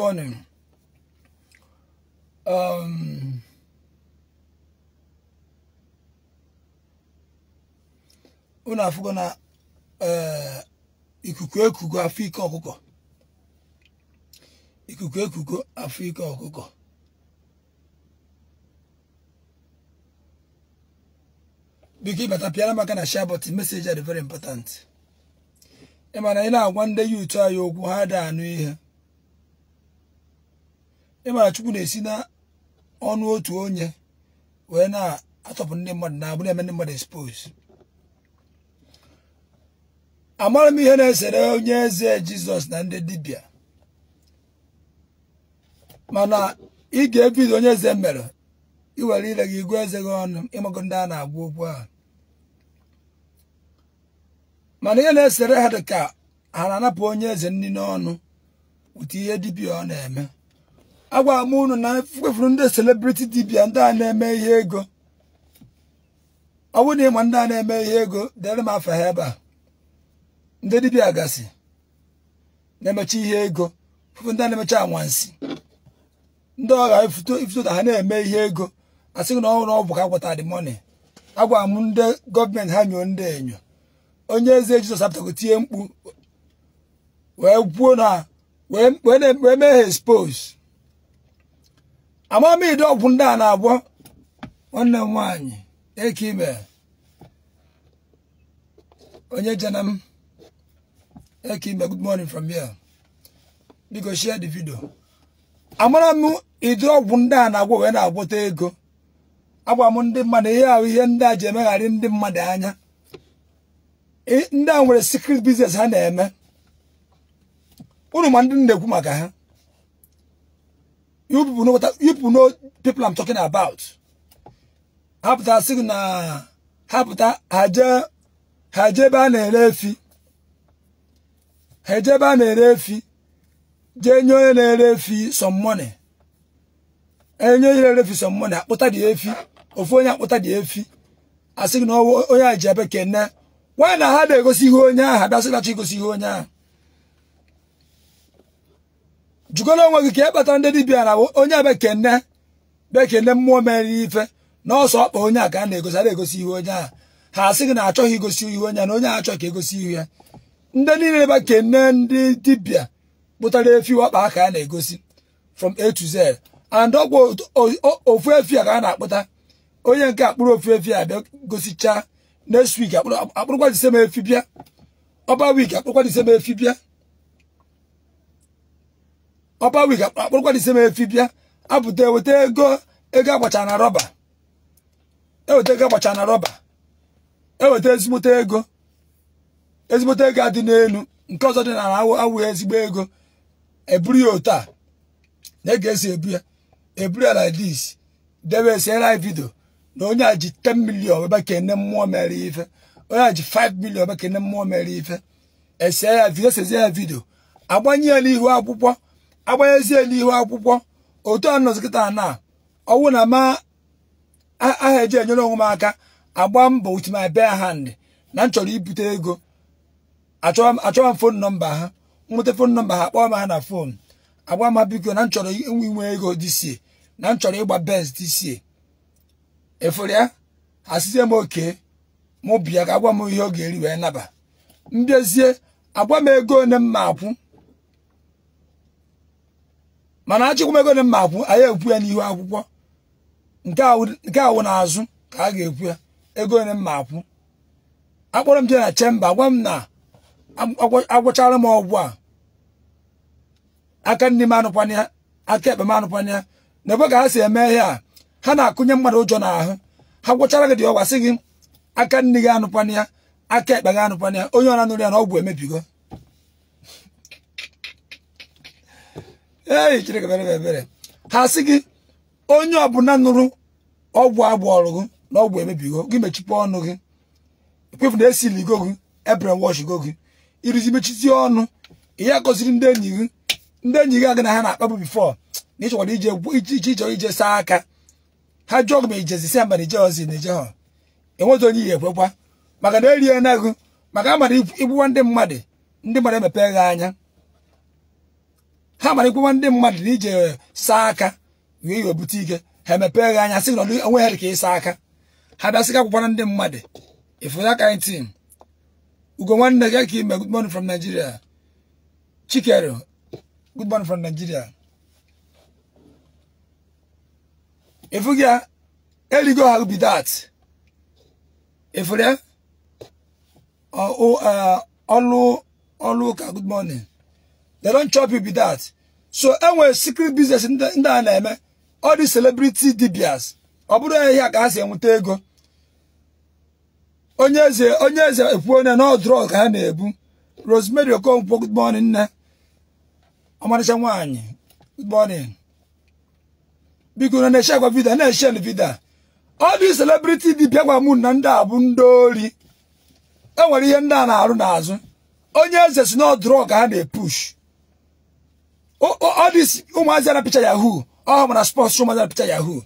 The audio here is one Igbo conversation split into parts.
morning. Um, na eh, ikuku ekuku afu ike ọkụkọ ikuku ekuku afọ ike ọkụkọ biko ịbata pịara maka na share button message are very important na na-agwa ndị yuutu anyị okwu ha da anụ ihe ịmara chukwu na-esi na ọnụ otu onye wee na achọpụ ndị mmadụ na-abụ na-eme ndị mmadụ expos amaghị m ihe na-esere onye eze jizọs na ndị dibịa mana ị ga-ebido onye eze mere iwere ire gị igwe eze gị ọnụ ịmago ndị a na-agwa okwu ahụ mana ihe na-esere ha dị ka ha na-anapụ onye eze nri n'ọnụ wute ihe dibịa ọ na-eme agwara m unu na mkpefuru ndị celebrity dibia ndị a na-eme ihe ego ọ bụrụ na ịma ndị a na-eme ihe ego dere m afa ha ebe a ndị dibia gasị na-emecha ihe ego fufu ndị a na-emecha anwansi ndị ọgha ifuto ifuto ha na-eme ihe ego a sịghị na ọhụrụ ọ bụ ka akwụta dị mọni agwara m ndị gọọmenti ha nyoo ndị enyo onye eze jizọs apụtago tie mkpu wee gwuo na wee mee ha expose amamide ọgwụ ndị a na-agwọ nwanne m nwaanyị eke ime onye jena m eke ime good morning from here biko share the video amara m ịdị ọgwụ ndị a na-agwọ wee na-agwọta ego agwa m ndị mmadụ ihe ahụ ihe ndị a ji emegharị ndị mmadụ anya ndị a nwere secret business ha na-eme unu ma ndị na-ekwu maka ha You people know what I, you people know people I'm talking about. Hapụta sị na hapụta haje haje ebe a na-ere efi haje ebe ere efi jee nye na-ere efi some money enye onye na-ere efi some money akpụta dị efi ofu onye akpụta dị efi asị gị na onye a ji ebe kene nwaanyị na ha na-egosi ihe onye ahụ abịasị nachi igosi ihe onye ahụ jụkọrọ onwe gị ka e kpata ndị dibia na onye bekene bekene mmụọ mere ife na ọsọ ọkpa onye a ka a na-egosi a na-egosi ihu onye a ha asị gị na achọghị igosi ihu onye na onye a ka egosi ihu ya ndị niile bekene ndị dibia kpụtara efi ọkpa ka a na-egosi from a to z and ọgwụ ofu efi a ka a na-akpụta onye nke akpụrụ ofu efi a bịa gosichaa next week akpụrụkwa disem efi bịa ọba week akpụrụkwa efi bịa ọpa wig akpụrụkwa ise m efi bịa abụta eweta ego ego agbacha na rọba eweta ego agbacha na rọba eweta ezigbote ego ezigbote ego adị n'elu nke ọzọ dị na awụ ezigbo ego eburu ya otu a na ege esi ebu ya eburu ya like debe esi ela vidio na onye a ji 10 million ebe ka ene mmụọ mere ife onye a ji 5 million ebe ka mmụọ mere ife ese ya vidio sezie ya vidio agbanye ya n'ihu akwụkwọ agbanyezie n'ihu akwụkwọ otu a nọzi kịta na ọwụ na ma aha eji enyere onwe m aka agba mbọ with my bare hand na m chọrọ ibute ego achọwa m fon nọmba ha nweta fon nọmba ha kpọọ m ha na fon agba m biko na m chọrọ inwe ego dịsie na m chọrọ ịgba benz dịsie efere ya asịzie m oke mụ bịa ka agwa m ihe ọ ga-eri wee naba mbezie agwa m ego ole m ma akwụ mana achịkwumego na mma akwụ anyị ekwu ya n'ihu akwụkwọ nke awụ azụ ka a ga-ekwu ya ego na mma akwụ akpọrọ m je na chemba gwa m na agwụchara m ọgwụ a aka nne m anụkwanya aka ekpe m anụkwanya na ebe ka ha si eme ihe a ha na-akụnye mmadụ ụjọ n'ahụ ha gwụchara gị dị ọgwa sị gị aka nne gị anụkwanya aka ekpe gị anụkwanya onye ọra nụrụ ya na ọgwụ emebigo ee chineke mere ebere ha sị gị onye ọbụla nụrụ ọgwụ agbọọrụ gị na ọgwụ emebigo gị mechipụ ọnụ gị ekwefu na esili go gị ebre wọsh go gị irizi mechizie ọnụ ihe gọziri ndị enyi gị ndị enyi gị agị na ha na-akpabụ bifọ na ịchọkwara ije iche iche ije saa aka ha jụọ gị ma ijezi si mba na ozi na ije ha enwezi onye ihe ekwekwa maka na erie na gị maka a mara ịbụwa ndị mmadụ ndị mmadụ emepee gị anya ha marịkwawa ndị mmadụ na ije eh, saa aka wee webute ike ha emepee gị anya sị na onwe ha dị ka ịsa aka ha bịa sị ka ndị mmadụ ifu that kind thing ugo nwanne gị ka ime good morning from Nigeria chikere good morning from Nigeria ifu gị a erigo ha ubi that ifure ọlụ ọlụ ụka good they don't chop you with that so enwere secret business ndị a na-eme all the celebrity dibias ọ bụrụ ihe a ka ha si enweta ego onye eze onye eze ekwu onye na drug ka ha na-ebu Rosemary Okonkwo good morning nne ọmarịcha nwaanyị good morning biko na na-eche agwa vida na-eche vida ọ dị celebrity dibia gwa mụ na ndị a bụ ndị ori enwere ihe ndị a na-arụ n'azụ onye eze si na ka ha na-epush Oh, oh, all this umuazi na picture ya who? Oh, mna sponsor umuazi na picture ya who?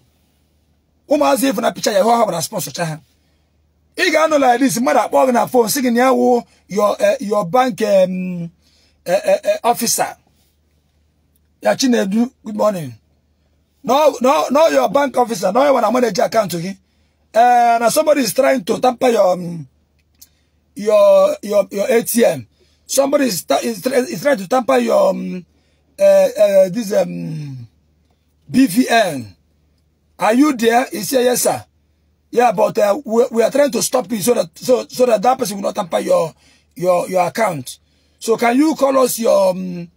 Umuazi even na picture ya who? Oh, mna sponsor chaha. Ị ga-anọ like this, mmadụ akpọ gị na phone sị gị na your uh, your bank um, uh, uh, officer. Ya Chinedu, good morning. No, no, no, your bank officer, no, when I manage your account to him. Uh, now somebody is trying to tamper your um, your your your ATM. Somebody is, is, is trying to tamper your um, uh, this um, BVN. Are you there? He said, yes, sir. Yeah, but uh, we, we, are trying to stop you so that so so that that person will not tamper your your your account. So can you call us your um,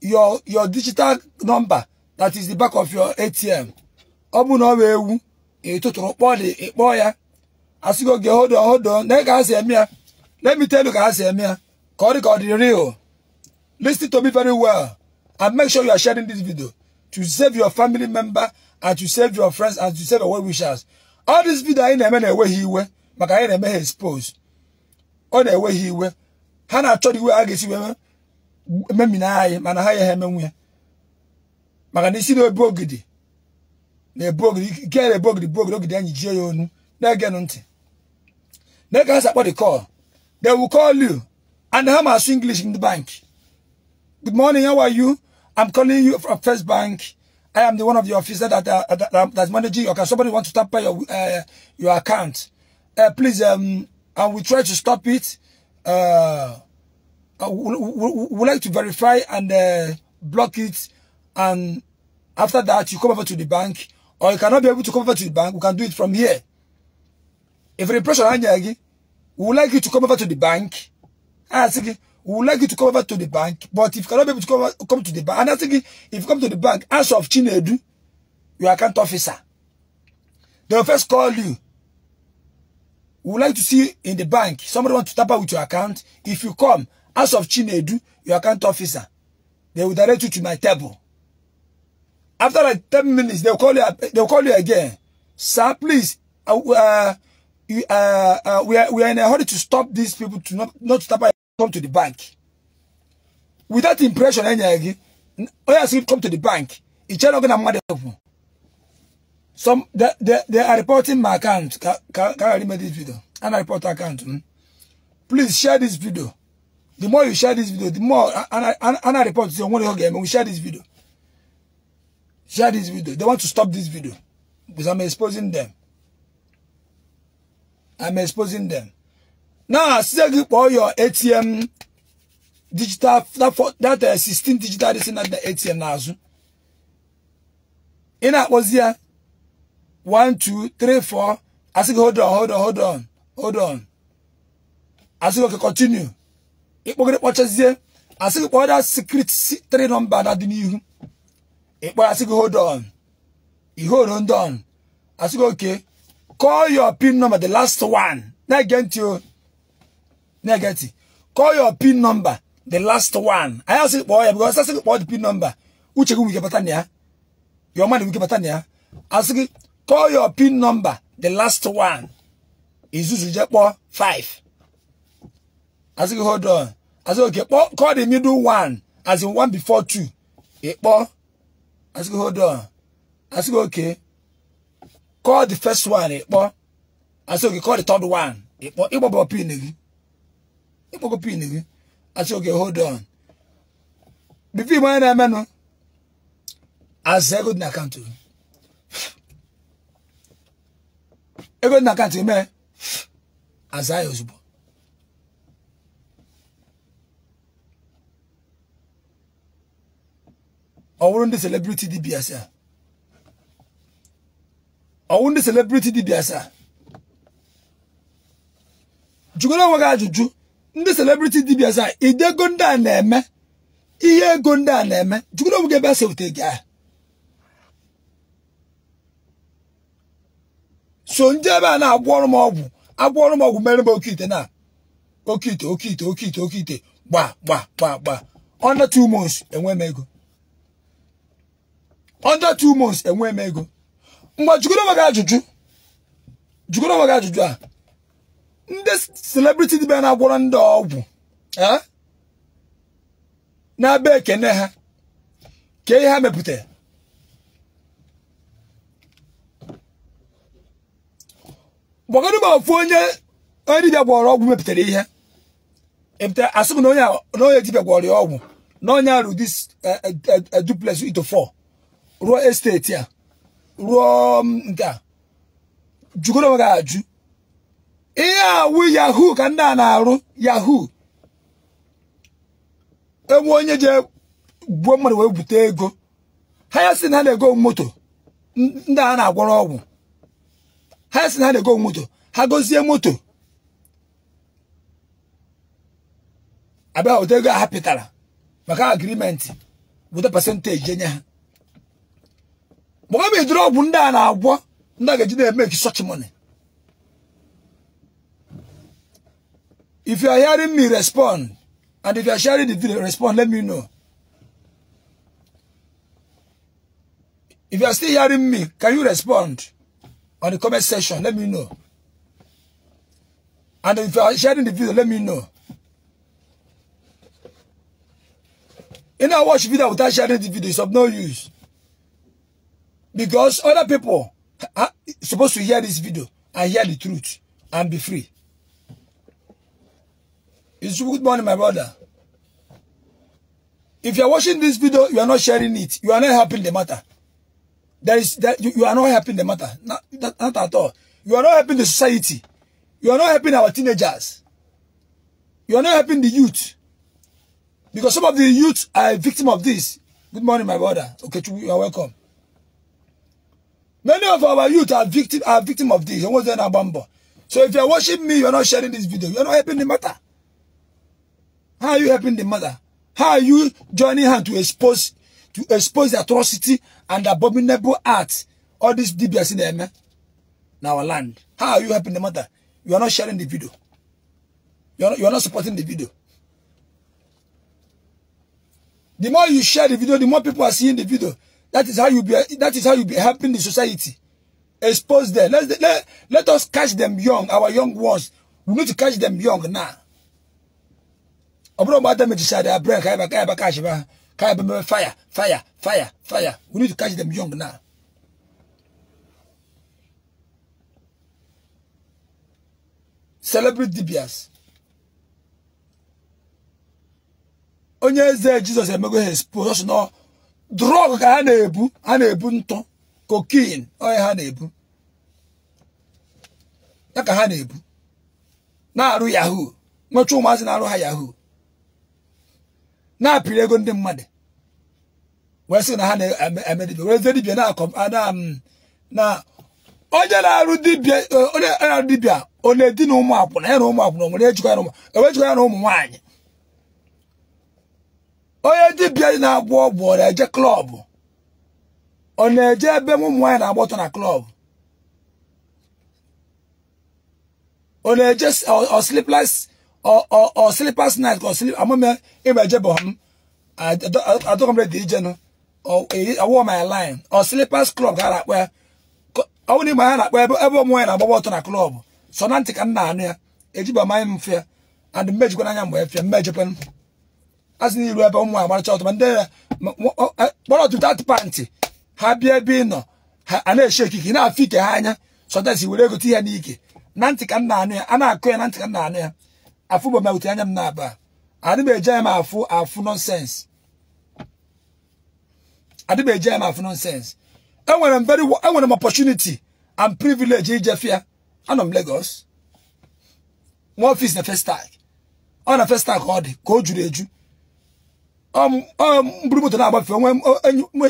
your your digital number that is the back of your ATM? Obu no wewu ituturu kpo di ikpo ya. Asigo ge hold on hold on. Let me tell you ka asemi ya. Ka ọ dị ka ọ dị real. Listen to me very well. And make sure you are sharing this video to save your family member and to save your friends and to save your well-wishers. All this video anyị na-eme na-ewe ha iwe maka anyị na-eme ha expose. Ọ na-ewe ha iwe. Ha na-achọ iwe ha ga-esi wee memina anyị mana ha ya ha emenwu ya. Maka na isi na-ebu ogidi na-ebu ogidi ike na-ebu ogidi bụ ogidi ogidi anyị jie ya onu na ege ha sakpọ the call. They will call you and ha ma asụ English in the bank. Good morning. How are you? I'm calling you from First Bank. I am the one of the officers that uh, that, uh, that's managing your account. Somebody wants to tamper uh, your uh, your account. Uh, please, um, and we try to stop it. Uh, we, we, we like to verify and uh, block it. And after that, you come over to the bank, or you cannot be able to come over to the bank. We can do it from here. If the impression, we would like you to come over to the bank. Ah, we would like you to come over to the bank, but if you cannot be able to come, come to the bank, and I think if you come to the bank, as of Chinedu, your account officer, they will first call you. We would like to see in the bank, somebody want to tap out with your account. If you come, as of Chinedu, your account officer, they will direct you to my table. After like 10 minutes, they'll call you, they'll call you again. Sir, please, uh, uh, uh, uh, we, are, we are in a hurry to stop these people to not, not to tap out come to the bank. Without impression, any again, Oyasi come to the bank. It's not gonna matter Some they, they, they are reporting my account. Can, can, can I remember this video? And I report account. Hmm? Please share this video. The more you share this video, the more and I and, and I report to one game. We share this video. Share this video. They want to stop this video because I'm exposing them. I'm exposing them. na asịa gị kpọọ your ATM digital data 16 uh, digital dịsị na ATM n'azụ ị na-akpọzi ya 1 asị gị hold on hold on hold on asị gị oke continue ịkpọgịrị kpọchazie asị gị kpọọ that secret 3 nọmba na dị n'ihu ịkpọrọ asị gị hold on ihoro ndị on asị gị oke call your pin number the last one na-ege ntị o negeti call your pin number the last one I ask kpọọ boy because asị gị kpọọ the pin number uche gị wike bata na ya your man wike bata na ya asị call your pin number the last one Is this je kpọọ five Ask gị hold on asị gị okay call the middle one as in one before two ị e boy? Ask gị hold on Ask gị okay call the first one ị kpọọ asị gị call the third one ị e kpọọ ịgbọbọ pin ịkpọkọ pin gị achọ oge hold on bifo igbe onye na-emenụ aza ego dị na akaụntụ gị ego dị na akaụntụ gị mee aza ya ozugbo Ọwụrụ ndị celebrity dị asaa Ọwụrụ ndị celebrity dị asaa jụgoro onwe gị ajụjụ ndị celebrity dibia za ah, ide ego ndị a na-eme ihe ego ndị a na-eme jugoro onwe ebe a sewute gị ahụ so ndị ebe a na-agwọ ọrụ m ọgwụ agwọ ọrụ m ọgwụ mere m oke ite na oke ite oke ite oke ite oke ite gba gba gba gba under two months enwe m ego under two months enwe m ego mgbe jugoro onwe ajụjụ jugoro onwe ajụjụ a ndị celebrity dibịa na-agwọrọ ndị ọgwụ na-abịa ekene ha ka ihe ha mepụtara gbagoro ma ofu onye onye dibịa gwọrọ ọgwụ mepụtara ihe epụtara asị na onye dị gwọrọ ya ọgwụ na onye arụ dị ito fọ ruo esteti a ruo mm, nke a jụgoro onwe gị ajụ ihe awụ yahoo ka ndị a na-arụ yahoo enwe onye je gbuo mmadụ wee bute ego ha ya si na ha na-ego moto ndị a na-agwọrọ ọgwụ ha ya si na ha na-ego moto ha gozie moto abịa ụdị ego a ha pịtara maka agrimenti weta pasentaji enye ha mgbe ọ bụ idoro ọgwụ ndị a na-agwọ ndị a ga-eji na-eme ekisọchimoni If you are hearing me, respond. And if you are sharing the video, respond. Let me know. If you are still hearing me, can you respond on the comment section? Let me know. And if you are sharing the video, let me know. You know, watch video without sharing the video. is of no use. Because other people are supposed to hear this video and hear the truth and be free. It's good morning, my brother. If you are watching this video, you are not sharing it. You are not helping the matter. There is that you, you, are not helping the matter. Not, that, not at all. You are not helping the society. You are not helping our teenagers. You are not helping the youth. Because some of the youth are a victim of this. Good morning, my brother. Okay, you are welcome. Many of our youth are victim are victim of this. So if you are watching me, you are not sharing this video. You are not helping the matter. How are you helping the mother? How are you joining her to expose to expose the atrocity and abominable acts? All these DBS in there, man. In our land. How are you helping the mother? You are not sharing the video. You are you are not supporting the video. The more you share the video, the more people are seeing the video. That is how you be. That is how you be helping the society. Expose them. Let let, let us catch them young. Our young ones. We need to catch them young now. ọ bụrụ mgbe damejisi their brain ka ebe ebe catch ha ka ebe mere fire fire fire fire we need to catch them young now celebrate dibias onye eze jizọs emego ha expose na drọg ka ha na-ebu ha na-ebu ntụ kokin onye ha na-ebu ya ka ha na-ebu na-arụ yahoo nwechaa ụmụazị na-arụ ha yahoo na-apịrị ego ndị mmadụ wee sị na ha na-eme dibia wee zie dibia na akọ onye na-arụ dibia e, ọ na edi na ụmụ akwụna ya na ụmụ akwụna nwere ejikwa ya na ụmụ ewejikọ ya na ụmụ nwaanyị onye dibia na-agwọ ọgwụ ọ na-eje klọbụ ọ na-eje ebe ụmụ nwaanyị na-agba ọtọ na klọbụ ọ na-eje ọ ọslipless or or sleepers night or sleep amome imejebom adokomre dị ije nụ ọwụọ my line or sleepers club ga akpa ya ọwụ n'ime ha na-akpa ebe ebe ụmụ na agbagba ọtọ na klọb so na ntị ka m na-anụ ya ejiba manye m mfe and mmejikwa n'anya mgbe efie mmejikwa asị na iru ebe ụmụ agbaracha ọtọ ma ndị ya kpọrọ otu ha bịa ebe nọ na-eche ekike ike ha anya sọtasi were egote ihe n'ike na ntị a akụ ya na ntị ka ya afụ bụ mawute anya m na-aba adị m m afụ afụ nọnsens adị m eji m afụ nọnsens enwere m very enwere m opportunity and privilege ijefia anọ m Lagos nwa ọfis na first ọ na first ka ọ dị ka o juru eju um, um, mburu moto na-agbafe onwe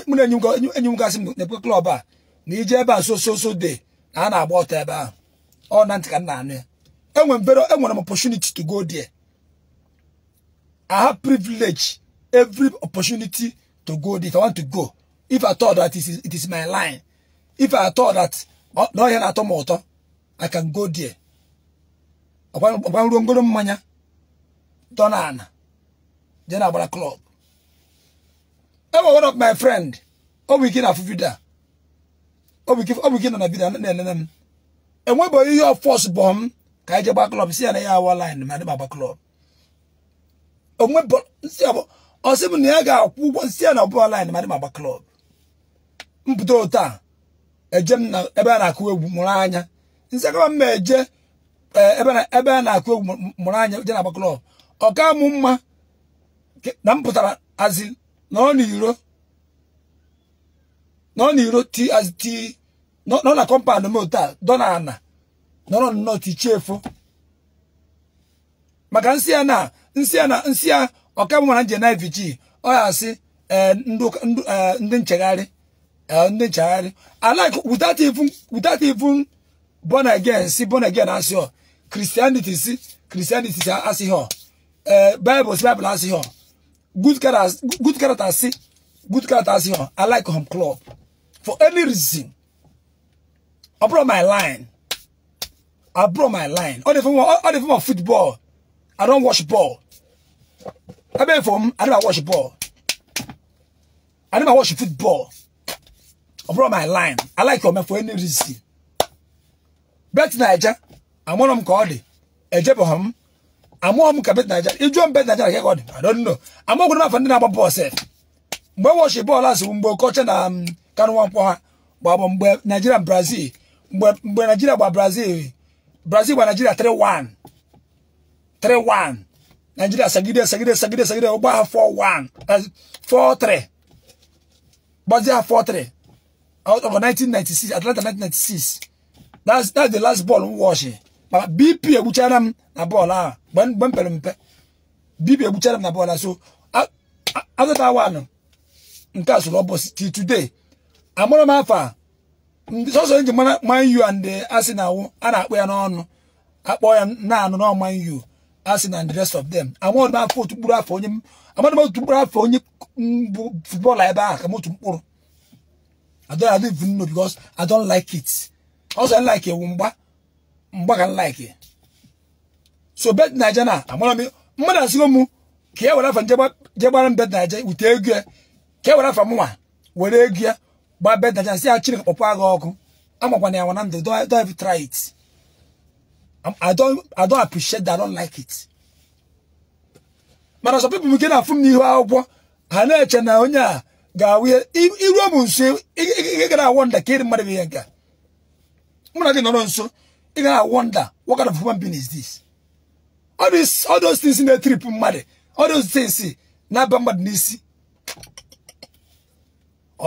mụ na enyi enyi m gasị m na-ekwe klọb a na ije ebe a so so so de na a na-agba ọtọ ebe ahụ ọ na ntị ka m na-anụ ya enwe very enwe opportunity to go there. I have privilege, every opportunity to go there. If I want to go, if I thought that it is, it is my line, if I thought that no here at all, I can go there. Ọgbanrungoro mmanya dọna ana je na club. Enwe one of my friend, ọ bụ ike na afụfida. Ọ bụ ike nọ na vida na-enene m. Enwebe ihe You fọs force bomb. ka anyị e je gba klọb si ya na ya awa line ma dịba gba klọb onwe ọsị m na ya ga-akwụ ụgwọ si ya na ọbụla line ma dịba gba klọb mpụta otu e a eje m na ebe a na-akụ egwu mụrụ anya nsị agaba m eje e eh, ebe a na-akụ egwu mụrụ anya je na gba klọb ọ ka mụ mma na m pụtara azị na ọ n'iro nọ n'iro ti azị ti nọ na kọmpand m otu a dọ na ana nọrọ nnọọ tichiefu maka nsị ya na nsị ya na nsị ya ọkabụ mara nje na vg ọ ya asị e, e, ndị nchegharị e, ndị nchegharị alike without even even born again si born again asị ọ christianity si christianity si asị ọ bible si bible asị ọ good character si good character asị ọ i like home club for any reason ọ bụrụ my line I broke my line. All the form, all, the of football. I don't watch ball. I beg from I don't watch ball. I never watch football. I my line. I like your man for any reason. Bet Niger. I'm one of them called. Ejeboham. I'm one of them bet Niger. If you bet Niger, I get I don't know. I'm not going to find another Mgbe watch ball as mgbe coach na um, kanwa mpo mgbe um, Nigeria Brazil. Mgbe Nigeria Brazil. Brazil gba Nigeria 3-1 3-1 Nigeria sagide sagide sagide sagide ha 4-1 4-3 Brazil ha 4-3 out of 1996 Atlanta 1996 that's that's the last ball m wọchị BP egbuchara m na bọọlụ ahụ mgbe m mpe BP egbuchara m na bọọlụ ah. so azụta 1 nke a bụ ọbọchị till today amụrụ m afọ a ndị sọsọ eji mara manyu and asị na awụ a na-akpọ ya n'ọnụ akpọ ya naanụ na manyu asị na the rest of them amadụ afọ otu mkpụrụ afọ onye amadụ otu mkpụrụ afọ onye bụ futbọọlụ ebe ahụ ka m otu mkpụrụ I don't, I don't even know because I don't like it. Also, I like it. Mba, mba can like it. So bet Niger na. Amona mi. Mada sigo mu. Kia wala fan jeba jeba ram bet Niger. Ute egya. Kia e wala fan mwa. Wale egya. gbaa gbabe dacha si ya chineke kpọpụ agha ọkụ amakwana ya na ndụ don't even try it I don't I don't appreciate that I don't like it mana sọ pipu m nke na-afụ m n'ihu akwụkwọ ha na-eche na onye a ga-awụ iruo m nso ị gara awọ nda ka ịrị mmadụ bụ ihe nke mụ na gị nọrọ nso ị gara awọ nda what kind of human being is this all those things na-etrip mmadụ all those things na-aba mmadụ n'isi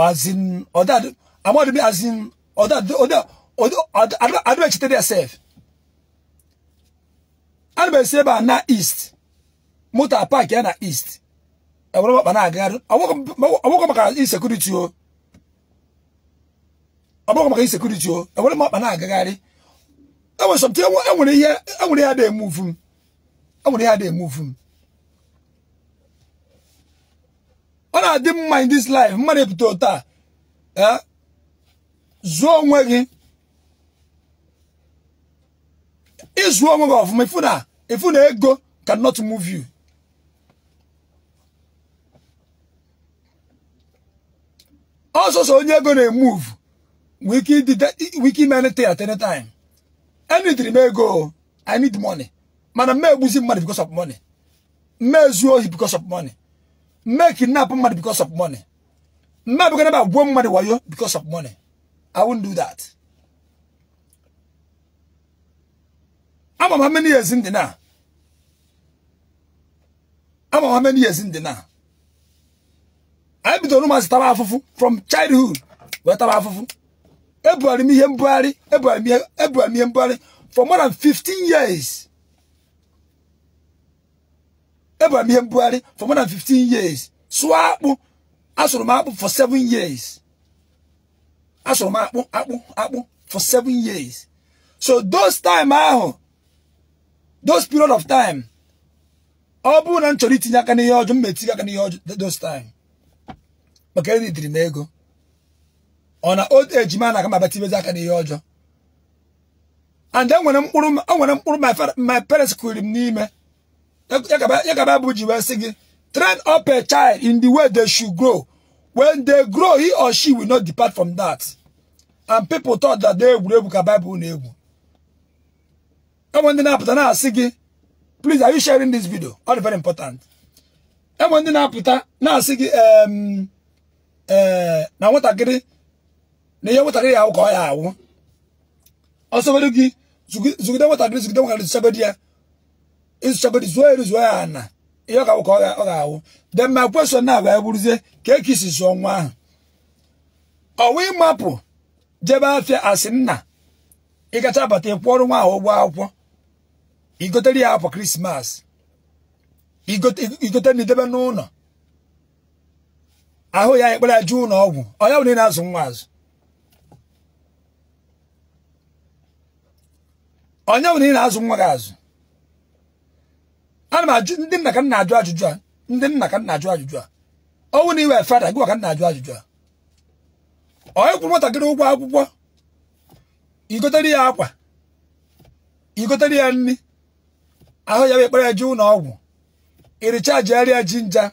as in or that I'm not as in or that or that or I don't cheat yourself. And be say ba na east. Motor park ya na east. E woro ba na agaru. Awoko maka insecurity o. Awoko maka insecurity o. E woro ba na agagari. E was something e nwere ihe e nwere ya dey move. E nwere ya dey move. na-adị mma in this life mmadụ epụta ụta a zụọ onwe gị ịzụọ onwe gị ọfụma ifu na ifu na ego cannot move you ọsọsọ onye ego na-emove wike ime anything at any time enidiri m ego i need money mana m egbuzi mmadụ because of money m ezuo ohi because of money mme kidnap mmadụ because of money mme abụghị ebe gbuo mmadụ wayo because of money I won't do that ama m how many years ndị na ama m how many years ndị na anyị bidoro ụmụazị taba afufu from childhood wee afufu e ebugharị m ihe mbugharị ebugharị m ihe mbugharị for more than 15 years Abraham Buhari for more than 15 years. So akpụ asụrụ m akpụ for 7 years. Asụrụ m akpụ akpụ akpụ for 7 years. So those time ahu, those period of time ọ bụrụ na m chọrọ itinye aka n'ihe ọjọ m metinye aka n'ihe ọjọ those time. Maka edidiri m ego. Ọ na old age ma na-aga m abatibezi aka n'ihe ọjọ. And enwere e mkpụrụ my parents kwuru m n'ime ya ka Bible ji wee sị gị train up a child in the way they should grow when they grow he or she will not depart from that and people thought that they egwuregwu ka Bible na-egwu enwe ndị na-apụta na-asị gị please are you sharing this video all very important enwe ndị na-apụta na-asị gị e, na nwatakịrị na ihe nwatakịrị ya ahụ ka ọ ya ahụ ọsọ gị zụgide nwatakịrị zụgide nwatakịrị zụchebe di ya nsọgodi zuo eri zuo ya ana ihe ọ ga-awụ ọ ga-awụ de ma kwesịrị na wee bụrụzie ka ekisi zụọ nwa ahụ ọwa ịmapụ jebe afịa asị nna ịgacha abata ịkwụọrụ nwa ahụ ụgwọ akwụkwọ igotere ya akwa krismas igote na idebe n'ụlọ ahụ ya ekpere jụ ụlọ ọgwụ ọya bụ na-azụ nwa azụ onye bụ na-azụ nwa gị azụ ana m ajụ ndị nna ka nna ajụ ajụjụ a ndị nna ka nna ajụ ajụjụ a ọnwụ na iwe fada gị ka nna ajụ ajụjụ a onye kwụrụ nwatakịrị ụgwọ akwụkwọ igotere ya akwa igotere ya nri ahụ ya bụ ekpere eje ụlọ ọgwụ ịrịcha jegharịa jinja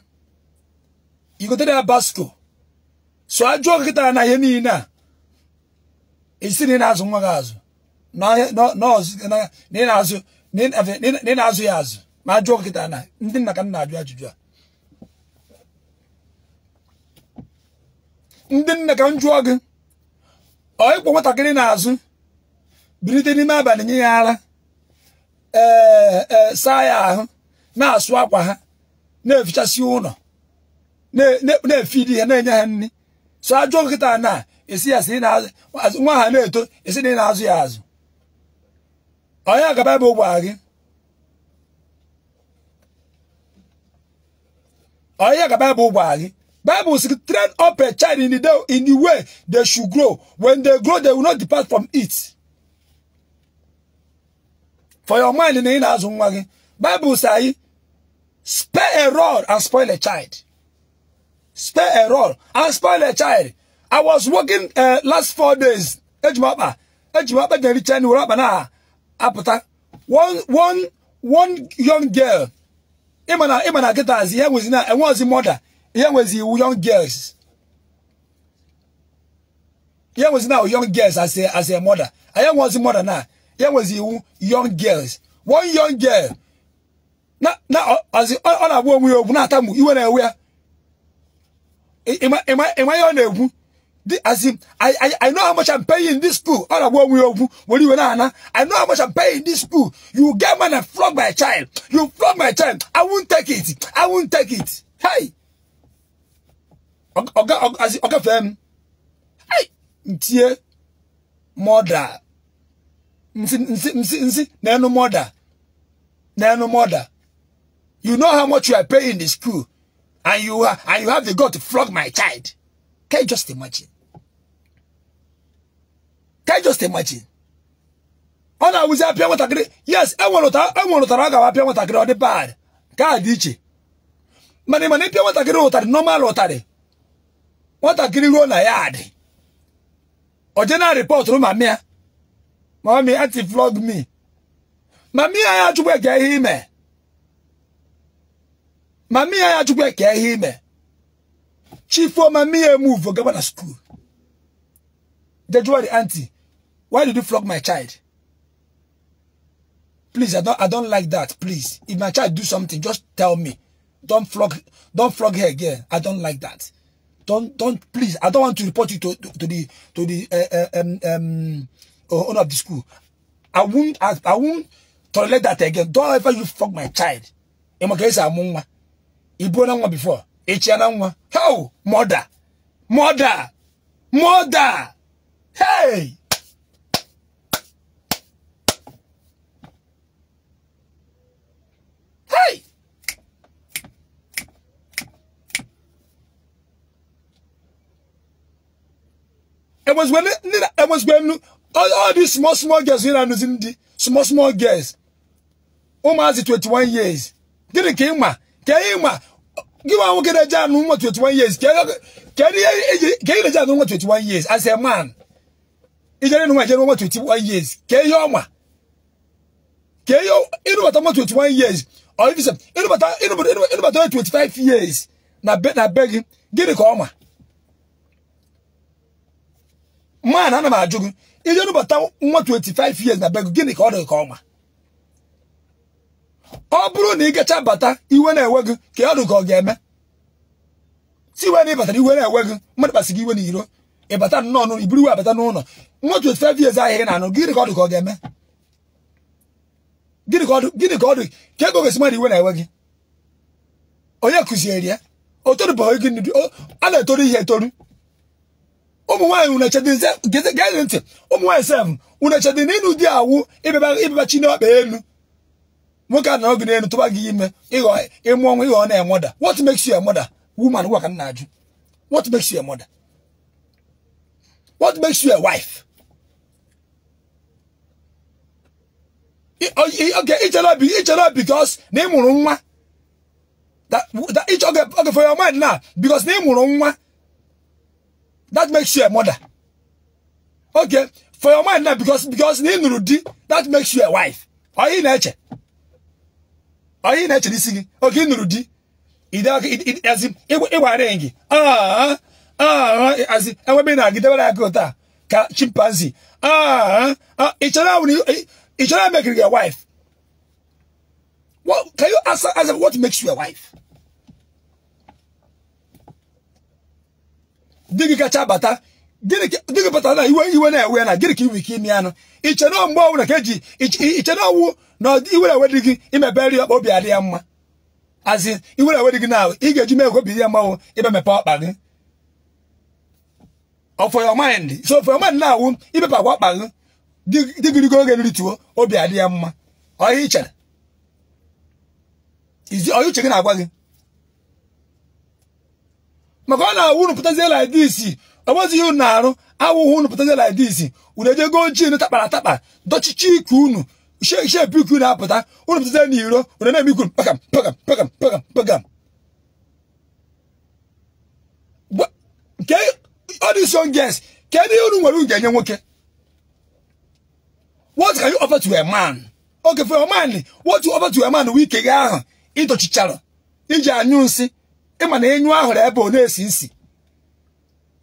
igotere ya basko so ajụọ nkịta na ihe niile a esi na ị na-azụ nwa gị azụ na ị na-azụ ya azụ ma ajụọ kịta na ndị nna ka nna ajụ ajụjụ a ndị nna ka m jụọ gị ọ ịkpọ nwatakịrị n'azụ bilite n'ime abalị nye ya ara ee e, saa ya ahụ na-asụ akwa ha na-efichasị ụlọ na-efidi ha na-enye ha nri so ajụọ kịta na esi ya si nwa ha na-eto esi na ị na-azụ ya azụ onye agaba ebe ụgbọ gị Oya ka Bible wari. Bible says train up a child in the day, in the way they should grow. When they grow, they will not depart from it. For your mind in the Bible says, spare a rod and spoil a child. Spare a rod and spoil a child. I was working uh, last four days. Ejimapa, Ejimapa, Jerry Chen, Urabana, Apata. One, one, one young girl ịma na kịtazi ihe nwezi na enwe ozi mọda ihe nwezi iwu young girls ihe nwezi na young girls as a as a mother anyị ozi mọda na ihe nwezi iwu young girls one young girl na na ọ na-agwa onwe ya okwu na-atamụ iwe na-ewe ya ịma ihe ọ na-ekwu The, as in, I, I, I know how much I'm paying in this school. I know how much I'm paying in this school. You get man and flog my child. You flog my child. I won't take it. I won't take it. Hey. okay, okay, Oga Fem. Hey. Ntie. Mother. Nsi, nsi, nsi, nsi. no mother. Nenu mother. You know how much you are paying in the school. And you, are, and you have the God to flog my child. Can you just imagine? Can you just imagine? Ọ na-awụzi apịa nwatakịrị yes enwere e ụtara a gawa apịa nwatakịrị ọ dị bad ka a dị iche mana ịmana ịpịa nwatakịrị ụtarị nọmal ụtarị nwatakịrị ruo na ya adị oje na rịpọtụrụ mami ya mami anti-vlog me mami ya ya achụkwa eke ihe ime mami ya ya achụkwa eke ihe ime chifo mami ya emuvo gaba na skuul Dejuwa the auntie, why did you flog my child? Please, I don't, I don't like that. Please, if my child do something, just tell me. Don't flog, don't flog her again. I don't like that. Don't, don't, please. I don't want to report you to, to, to the, to the uh, uh um, um, owner of the school. I won't, I, I won't tolerate that again. Don't ever you flog my child. Emokesa amungwa. Ibu na before. Echi na How mother, mother, mother. Hey! Hey! It was when it, it was when all, all these small small girls here are using the small small girls. Almost 21 years. Didn't came ma. Came ma. Give a look at that 21 years. Can you get a 21 years as a man? ijere nu ijere mo 21 years ke yo ma ke yo inu bata mo 21 years or if you say inu bata inu bata inu bata 25 years na be na beg gini ka o ma man ana ma ajugu ijere nu bata mo 25 years na beg gini ka o de ka o ma ọ bụrụ na ị gacha bata iwe na-ewe gị ka ọ dị ka ọ ga-eme si iwe na ịbatara iwe na-ewe gị mmadụ kpasị gị iwe n'iro ịbata nnọọ n'ụlọ iburu iwe abata n'ụlọ nwa 25 years ahịrị na anụ gịnị ka ọ dị ka ọ ga-eme gịnị ka ọ dị ka ego ga mmadụ iwe na enwe gị onye kụziere ya a na-etoru ihe etoru ụmụ nwaanyị gee ntị ụmụ nwaanyị sef unu echedi na di awụ ịbịaba chi n'ọkpa elu nwoke a na gị n'elu tụba gị ime ịmụ ịghọ na-enweda what m na What makes you a wife? Okay, ichere because na ị mụrụ nwa okay, for your mind now because na ị mụrụ nwa that makes you a mother. Okay, for your mind now because because na ị nụrụ di that makes you a wife. Ọ ị na-eche? Ọ ị na-eche n'isi gị? Oge ị nụrụ di, ị dị aka ịwara gị. Ah, ah, eh, enwe ị na-agidebere aka otu a ka chimpanzee ị chọrọ emekiri wife What, can you ask, ask what makes you a wife? Digi kacha bata, gị bata na iwe iwe na ewe na gịnị ka iwe ike ime anụ. Iche na mgbe ọwụ na ka eji ọwụ na iwe na ewe dị gị ọkpa obi adị ya mma. Azị iwe na ewe dị eji mee ya ọkpa gị. ọ oh, for your mind so for your mind na-awụ di di digirigo oge nrituo obi adị ya mma ọya ichere ọya uche gị na-agwa gị maka ọ na-awụ unu pụtazie like this ọ bụzi ihe unu na-arụ awụghụ unu pụtazie like this unu ejego ojii unu takpara atakpa dọchichi ike unu shepu ike unu apụta unu pụtazie n'iro unu na-eme ikwu pakam pakam pakam pakam pakam nke all these young girls kedu ihe unu nwere unu enye nwoke what can you offer to a man okay for a man what you offer to a man wike gị ahụ ịdọchichara iji anyụ nsị ịma na enyu ahụrụ ebe ọ na-esi nsi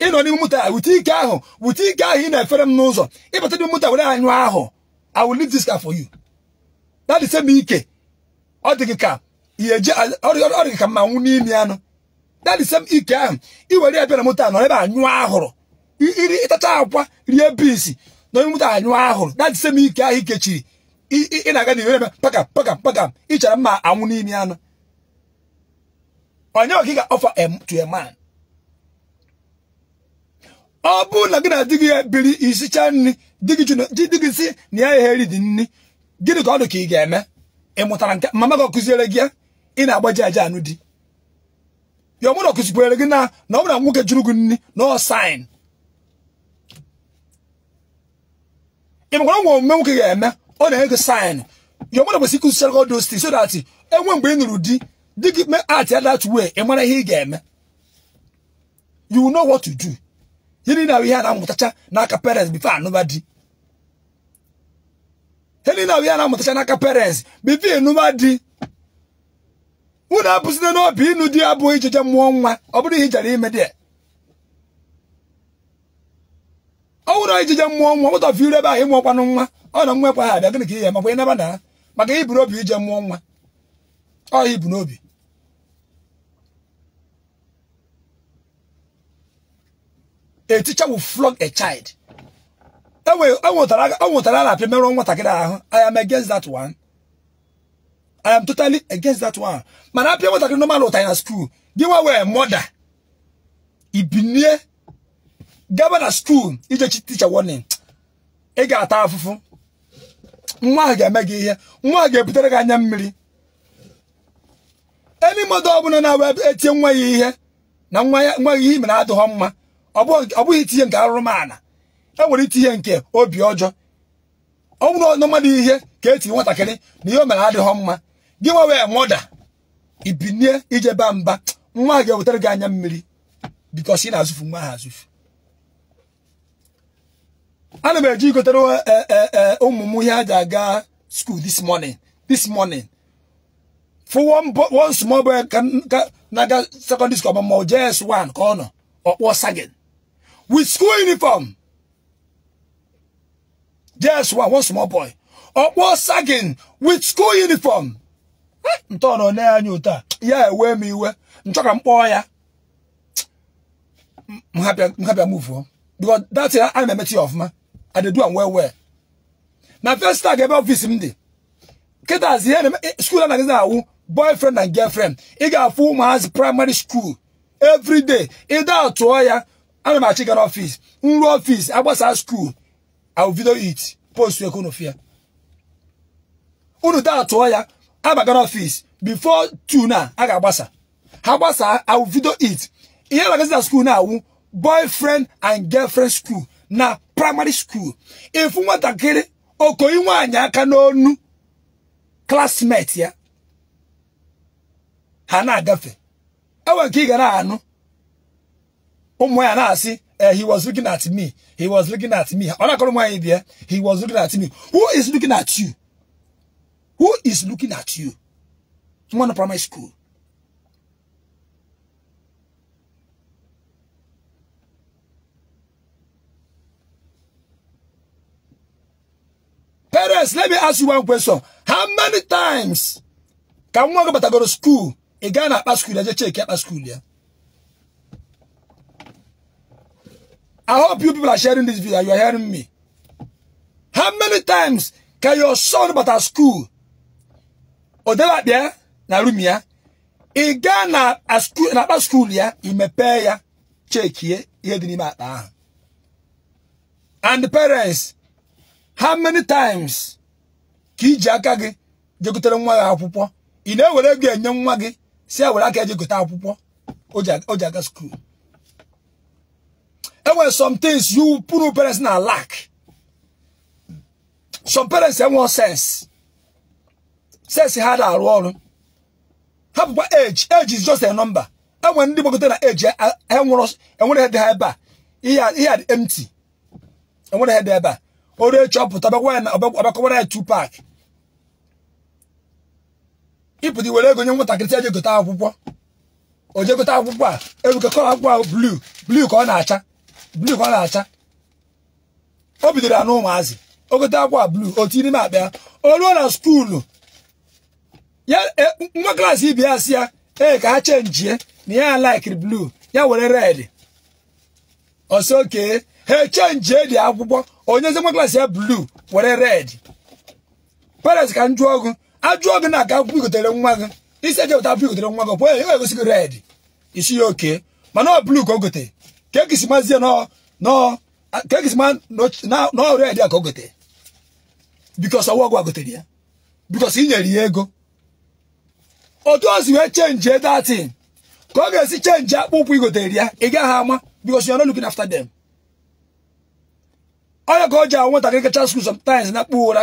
ịnọ n'ime moto a ike ahụ wute ike ahụ ị na-efere m n'ụzọ ịbata n'ime moto were anyụ ahụ I will leave this car for you that ike ọ dị gị ka ka mma nwụ n'imi anụ dadisem ike ahụ iwere ya na moto a nọ ebe anyụ ahụrụ iri ịtacha akwa rie bisi na onye moto anyụ ahụrụ dadisem ike ahụ ikechiri ị na-aga n'ihu ebe paka pakam pakam ịchara mma anwụ n'imi anụ onye ọka ga-offer to a man ọ bụ na gị na di gị biri isicha nri di gị si na ya egheri dị nri gịnị ka ọ dị ka ị ga-eme ị mụtara nke mama gị ọ kụziere gị ya ị na-agbaji aja anụ di your mother kụzikwere gị na na ọmụna nwoke jụrụ nni nri sign. ọsain ịmakwara nwa omume nwoke ga-eme ọ na-enye gị sain ya ọmụna kwesịrị ịkụzichara gị so that enwe mgbe ị nụrụ di di gị mee art e that way ị ihe ị ga-eme you know what to do ahụ ihe a na-amụtacha n'aka parents bifo anụba di ahụ ihe a parents before unu na n'obi ịnụ di ya bụ ijije mmụọ nwa ọ bụrụ ime dị ọ wụrụ ijije mmụọ nwa ụtọ fi ahụ ebe ahụ nwa ọ na nwa ekwe ha abịa gịnị ka ihe makwa ịnaba na maka ibu obi ije mmụọ nwa ọ ibu n'obi a teacher will flog a child e e e apịa ahụ I am against that one. I am totally against that one. Mana apịa nwatakịrị normal ụta na skuul gị nwa wee mọda ibinie gaba na skuul ijechi ticha warning ị ga-ata afụfụ nwa ahụ ga-eme gị ihe nwa ahụ ga-ebutere gị anya mmiri enyi mmadụ bụla na-awee etinye nwa ya ihe na nwa ya nwa ihe mere adịghọ mma ọ bụghị itinye nke arụrụmala e nwere itinye nke obi ọjọọ ọ bụrụ ọ mmadụ ihe ka etinye nwatakịrị na ihe o mere adịghọ mma gị nwa wee mọda ibinie ijeba mba nwa gị ewetara gị anya mmiri bikos ị na-azụfu nwa ha azụfu ana m eji igotere e, e, e, ụmụ m ihe a ji aga school this morning this morning for one, one small boy can, can naga secondary school ọmụmụ js1 ka ọ nọ ọkpọ sagin with school uniform js1 one small boy ọkpọ sagin with school uniform ntọọrọ ne anya otu a ya ewe m iwe nchọ ka m kpọọ ya mhapịa muvuo because that's ya ana emechi ya ọfụma adedu am well well na first ga ebe ọfisi m dị kịtazi ihe e, skuul anaghịzi awụ boyfriend and girlfriend ị ga-afụ ụmụazị primary school every day ịda tụọ ya ana m achị gara ọfis nru ọfis agbasa skuul awụ video it post ekonofia unu da tụọ ya abagara ofis bifo tu na a ga-agbasa ha gbasa awụ it ihe na skul na skuul na-awụ boyfriend and girlfriend school na primary school ifu nwatakịrị okoyi nwaanyị aka n'onu klasmet ya ha na-agafe enwe nke ị ga na-anụ ụmụ ya na-asị he was looking at me he was looking at me ọ na-akọrọ nwaanyị bịa he was looking at me who is looking at you Who is looking at you? Someone in primary school. Parents, let me ask you one question. How many times can one go but I go to school? A guy at school, I just check at school, yeah. I hope you people are sharing this video. You are hearing me. How many times can your son but at school odelakpa ya na rum ya ị gaa na akpa school ya imepee ya chekie ihe dị n'ime akpa ahụ and parents how many times ka iji aka gị jegotere nwa gị akwụkwọ ị na-ewere ego enye nwa gị si e were aka ejegote akwụkwọ o ga school. skuul enwere some things you pụrụ parents na lack some parents enwe sense sesi ha na-arụ ọrụ ha bụkwa eji eji just a nọmba enwere ndị gbagote na eji enwere e e dị ha ebe a ihe a dị empty enwere ha dị ebe a oru echi ọpụta ọbakọwara ya two pack ịpụta iwere ego nye nwatakịrị eji gote akwụkwọ o gote akwụkwọ a e erukekọrọ akwụkwọ ahụ bluu bluu ka ọ na-acha bluu ka ọ na-acha o bidoro ya n'ụmụazị o gote akwụkwọ a bluu o tinye n'ime akpa ya o ruo na skuulu ya eh, nwa klaasị ibi ya sị ya ee ka ha chenjie na ya laikiri bluu ya were red ọsọ okee ha chenjie dị akwụkwọ onye onyezi nwa klaasị ya bluu were red paris ka m jụọ ọgụ ajụọ gị na aka akwụkwọ igotere nwa gị isi eje wụta akwụkwọ igotere nwa gị pụọ ya ga-egosi gị red isi ya okee mana ọ bluu ka o gotere ka ekisi mazie nọ nọ ka ekisi ma na ọ red a ka o gotere bikọs ọwa ọgwụ a ya bikọs ị nyere ya ego otu o si wee chenji datin ka ọ ga-esi chenji akpụ ụkwụ igotere ya ị gaghị ama because you are not looking after onye ka o ji anwụ nwatakịrị kacha skul sometimes na akpụ ụra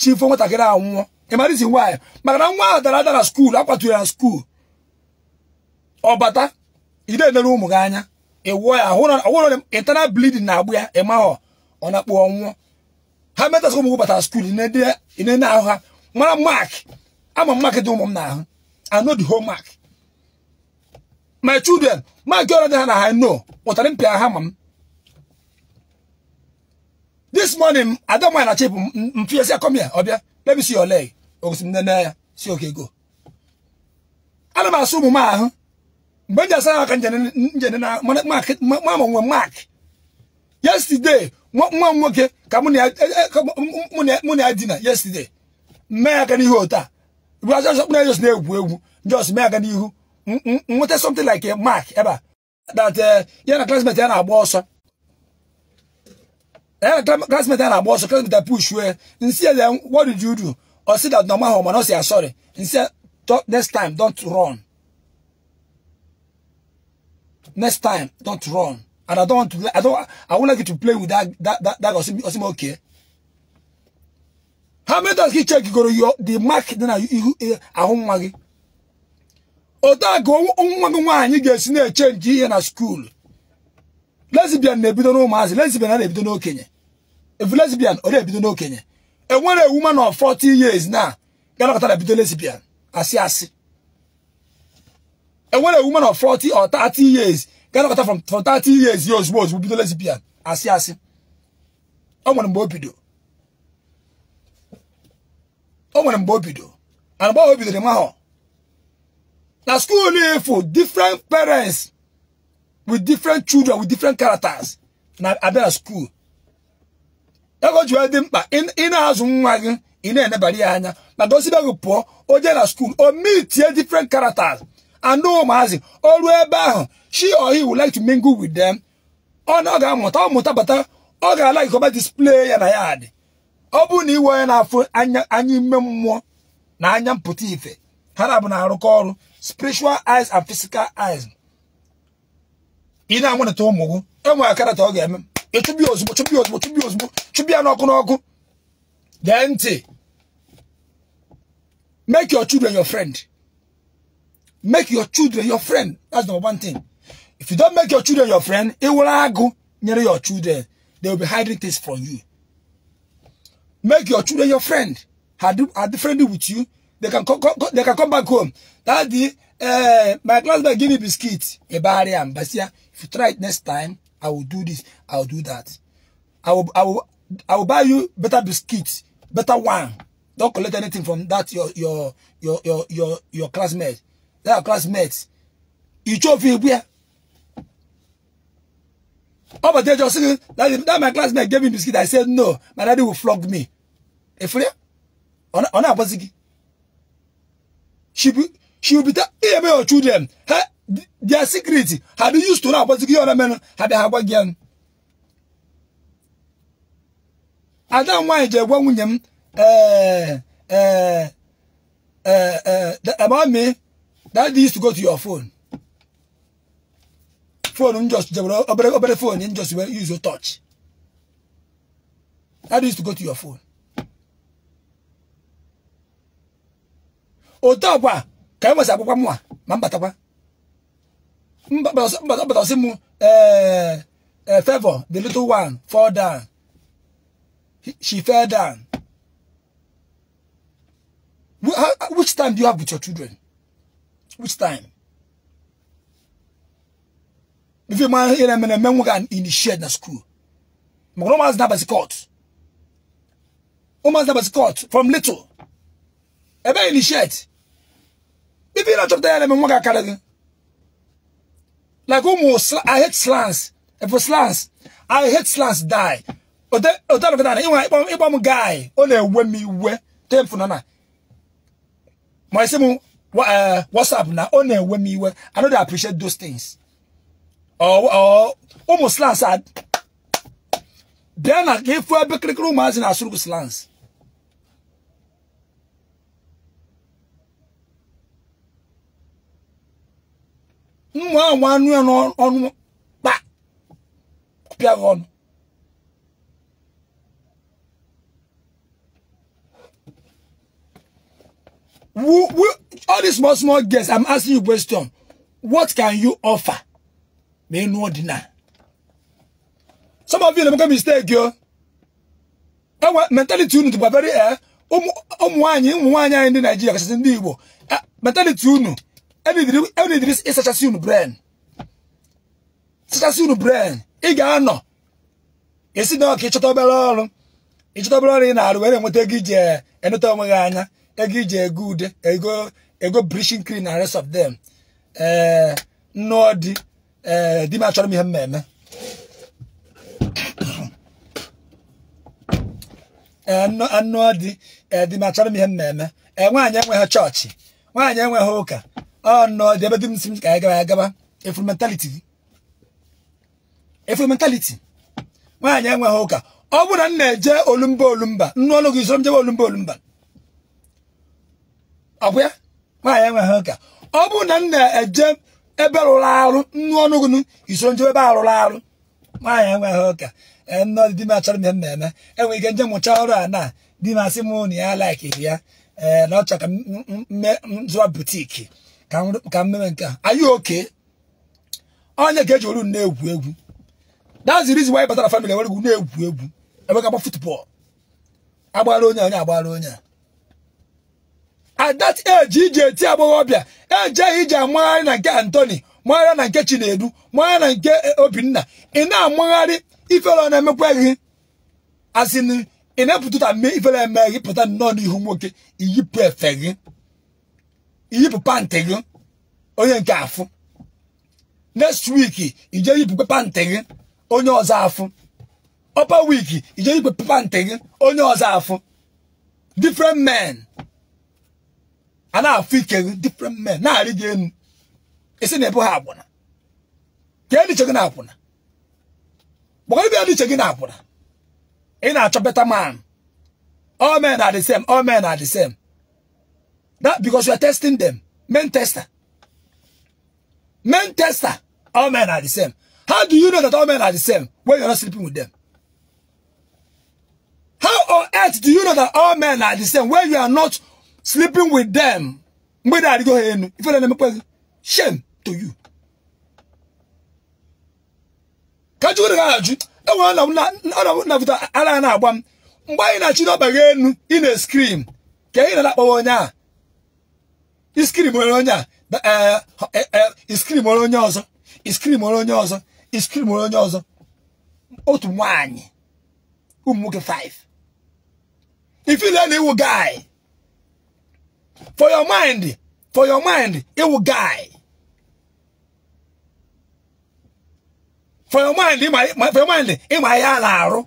chifo nwatakịrị anwụọ ịmarizi nwaanyị maka na nwa a dara adara na skuul akwatụrụ na skuul ọ bata ide ụmụ gị anya ịwụọ ya ọhụrụ internal blidin na-agbụ ya ịmahọ ọ na-akpụ ọnwụọ ha metasị ụmụ gị bata skul ị ahụ ha mara mak ama mark dị ụmụ m I know the whole mark my children mark ọrụ dị na ha no pụtara mpịa ha ma m this morning adamai na chip come here ọbịa let me see your leg ogosi m nene ya si oke go ana m asụ m ahụ mgbe nje asa na mark yesterday nwoke ka mụ na ya yesterday mmee na just na-egwu egwu just mee aga n'ihu nweta something like uh, uh, a mark ebe a eh, that ya na classmate ya na-agba ọsọ classmate ya na-agba classmate ya push wee see ya what did you do ọ sị that normal home ọ sị ya sorry nsi ya next time don't run next time don't run and i don't i don't i won't like you to play with that that that, that okay ha metas gị chekigoro yo the mark dị na ihu ahụ nwa gị otu a ka nwa gị nwaanyị ga-esi na-echenji eche ihe na skuulu lesbian na-ebido n'ụmụazị lesbian na-ebido n'okenye efu lesbian ọ na-ebido n'okenye enwere ewu ma na 40 years na galakọtara bido lesbian asị asị enwere ewu ma na 40 or 30 years galakọta from 30 years ya ozugbo ozugbo bido lesbian asị asị ọ nwere mgbe o bido o nwere mgbe o bido and mgbe o bidoro mahụ na school ifu different parents with different children with different characters na abịa na school ego ji dị mkpa ị na-azụ nwa gị ị na-enebara ya anya maka osibe gị pụọ o jee na school o meetie different characters and ụmụazị o ruo ebe ahụ she or he would like to mingle with them ọ na ọ ga-amụta ọ mụta bata ọ ga-ala ikọba display ya na ya ọ bụrụ na iwe onye na-afụ anya ime mmụọ na anya mpụta ife ha na-abụ na-arụkọ ọrụ spiritual eyes and physical eyes ị na-anwụnịta ụmụ gị enwere karata ọ ga-eme ịchụbi ozugbo chụbi ozugbo chụbi ozugbo chụbi ya n'ọkụ n'ọkụ dee ntị make your children your friend make your children your friend that's number one thing if you don't make your children your friend ị were agụ nyere your children they will be hiding things from you Make your children your friend. Are, are friendly with you? They can, co co they can come back home. Daddy, uh, my classmate give me biscuit. Ebari and Basia. If you try it next time, I will do this. I will do that. I will, I will, I will buy you better biscuits, better one. Don't collect anything from that your your your your your, your classmate. That classmates. You chop here. All but just that, that my classmate gave me biscuit. I said no. My daddy will flog me. Efere? Ona ona abozigi. She be she will be that ebe your children. Her, their secret. Have you used to know abozigi ona men had her again. I don't why the one nwunye them eh eh eh eh about me that used to go to your phone phone just obere obere phone you just use your touch that is to go to your phone otu ọkwa ka e nwesị akwụkwọ mwa ma mbatakwa mbatasị m eh, eh, favor the little one fall down she fell down which time do you have with your children which time If you man hear and men who can initiate na school. Mgromas na basi caught. Omas na basi caught from little. Ebe initiate. If you not to there men who can carry. Like almost I hate slants. If for slants, I hate slants die. Ote ote of that. Iwa iwa iwa mu guy. Eh, oh, Ole we mi we. Tem funana. My simu. What's up now? One we me. I know they appreciate those things. Oh oh, almost slants then I gave for a big room as in Asuru slants. Mwa wanu ya no onu ba pia onu. All these small small guests, I'm asking you question. What can you offer? na ịnụ ọdịna some of you na mistake yo! mentality unu very eh, ụmụ nwaanyị ụmụ anya anyị ndị Naijiria kachasị ndị Igbo eh, mentality unu enidiri ịsachasị unu brain unu brain ị ga-anọ esi na ọka ọrụ ịchọta ọrụ ị na were eh, enweta ego anya ego go rest of them ee eh, di m achọrọ m ihe m eme anụ dị di m achọrọ m ihe m na-eme ee nwaanyị enweghị chọọchị nwaanyị enweghị ụka ọ nọọ dị ebe di m si m ka anyị gaba ya gaba efu mentaliti efu mentaliti nwaanyị enweghị ụka ọ bụrụ na m na-eje olumba olumba nnu ọlụ gị zoro m jebe olumba olumba ọ bụ ya nwaanyị enweghị ụka ọ bụrụ na m na-eje ebe rụrụ arụ nnu ọnụgụnụ iso njem ebe a rụrụ arụ nwaanyị enweghị ụka e, nọdụ di m achọrọ m eme enwere ike nje mụcha ọrụ a na di m asị m na ya laikiri ya ee na ọ chọrọ ka zụọ butiki ka mmemme nke a anyị oke onye ga-eji oru na-egwu egwu that's the reason why batara family enwere egwu na-egwu egwu ebe ga agba futbọọlụ agbara onye onye agbara onye a at that age iji eti agbọghọbịa ejeghị iji amụgharị na nke Anthony magharịa na nke Chinedu mụgharị na nke Obinna ị na amụgharị ifere ọ na-emekwa gị asịnị ị na-epụtụta mme ifere eme gị pụta nnọọ n'ihu nwoke iyipụ efe gị iyipụ pantị gị onye nke afụ next week ije yipụkwe pantị gị onye ọzọ afụ upper week ije yipụ pantị gị onye ọzọ afụ different men and I feel different men. Now I again, it's in a boy abona. Can you check it an abona? Why be you checking abona? In a better man. All men are the same. All men are the same. That because you are testing them. Men tester. Men tester. All men are the same. How do you know that all men are the same when you're not sleeping with them? How on earth do you know that all men are the same when you are not sleeping with them mgbe na adịgo ife na-emekwa shame to you ka jụgoro gị ajụ ọ na na-agba m mgbe anyị na-achị n'ọba gị ị na-eskrim ị na-akpọwa onye a iskrim onye onye a iskrim e, e, e, onye onye ọzọ iskrim onye onye ọzọ otu For your mind, for your mind, it will guy. For your mind, in my, for your mind, in my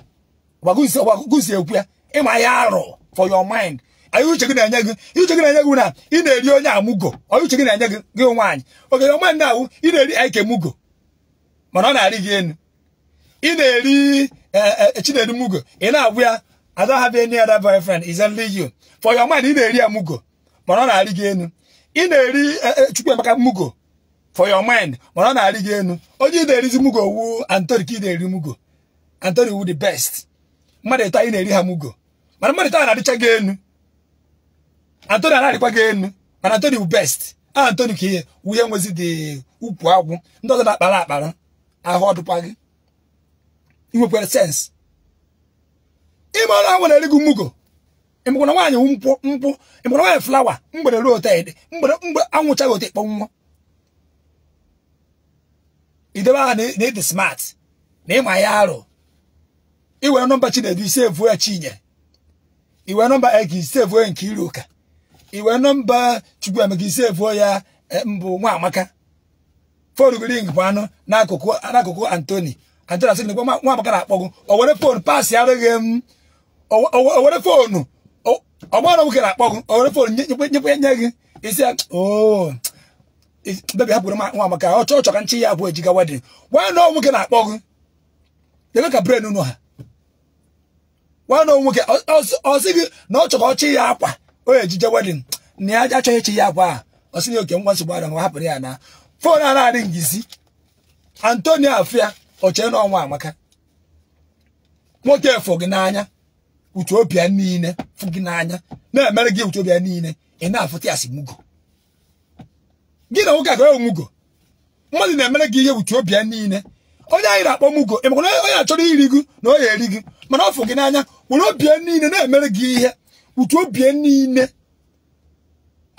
Wagusi, wagusi For your mind. Are you checking na You checking na na? eri onya amugo. Are you checking na nyagi gi Okay, your mind now, na eri eke mugo. Mana na ari gi enu. na eri eh eh chinedu mugo. Ina abua I don't have any other boyfriend. It's only you. For your mind, na eri mugo mana ọ na-arị gị enu ị na-eri e, e, chukwu Chukwuemeka mugo for your mind mana ọ na-arị gị enu onye ị na-erizi mugo wu antoni ka ị na-eri mugo antoni wu the best mmadụ ịtọ anyị na-eri ha mugo mana mmadụ ịtọ na-arịcha gị enu antoni anarịkwa gị enu mana antoni wu best a Anthony ka ihe wuhe nwezi dị ukwu agwụ ndị ọzọ na-akpara akpara ahụ ọdụkwa gị inwekwere sens ịma na ha nwere eri gị mugo emekwana nwaanyị nkwụ nkwụ emekwana nwaanyị flawa mgbere ruo ted mgbere mgbe anwụchaghị ote kpọnwụọ idebe aha na ịdị smart na ịma ya arụ iwere nọmba chinedu ise evuo ya chinye iwere nọmba ege ise evuo ya e, nke iruka iwere nọmba chukwuemeka ise evuo ya mbụ nwa amaka fon ring bụ anụ n'akụkụ antoni antoni asị na nwa amaka na-akpọgụ owere were fon pasị arụghị m owere were fonu ọgbara nwoke na-akpọ gị owere fon nyekwe nye gị isi bebi hapụrụ m nwa maka ọ chọọ chọka nchi ya abụọ ejiga wedin nwanyị nọ nwoke na-akpọ gị ebe ka bren unu ha nwanyị nọ nwoke ọ sị gị na ọ chọka ọchị ya akwa o ejije wedin na ya achọghị chi ya akwa a ọ sị na oke ngwa nsogbu ara hapụrụ ya na fon a na-adị ngịzi antonio afia ọchee n'ọnwa amaka nwoke efo gị n'anya Ethiopia niile fụ gị n'anya na-emere gị Ethiopia niile ị na-afụta asị simugo gị na nwoke aga ya mugo mmadụ na-emere gị ihe Ethiopia niile onye anyị na-akpọ mugo ị makwa onye achọrọ iri gị na onye eri gị mana ọ fụ gị n'anya were obie niile na-emere gị ihe Ethiopia niile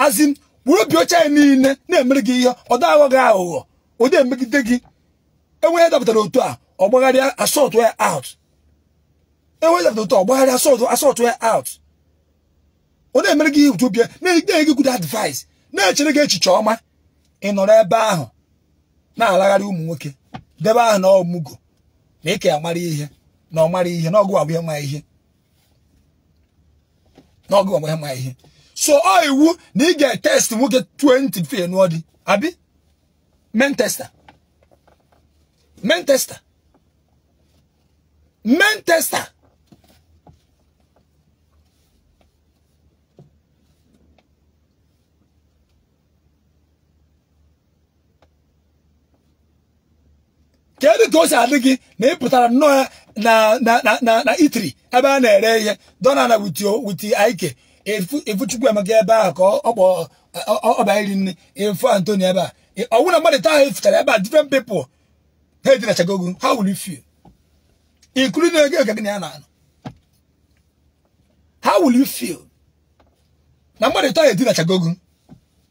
azin were obi oche anyị niile na-emere gị ihe ọ aghọ gị aghụghọ ụdị emegide gị enweghị ya dapụtara otu a ọ gbagharịa asọtụ ya out to talk. enweghị dọkịta ọgbaghara asọtụ out ọ na-emere gị ihe obi na-enye gị good advice na-echere gị echiche ọma ị nọrọ ebe ahụ na-alagharị ụmụ nwoke debe ahụ na ọmụgo na ịka ya mara ihe na ọ mara ihe na ọgụ agwa ma ihe na ọgụ agwa ma ihe so ọ iwu na ị ga-etest nwoke 20 fe nụọ dị abi men tester men tester men tester kedu ka o si adị gị na ị pụtara nnọọ ya na na na itri ebe a na-ere ihe dọna na witi aike efu chukwu emeka ebe ahụ ka ọ bịa iri nne efu antonio ebe a ọnwụ na mmadụ taa ha efutara ebe a different people ha edinachagogo ha wuru fie ikuru na ego gị na ya na how will you feel na mmadụ taa ha edinachagogo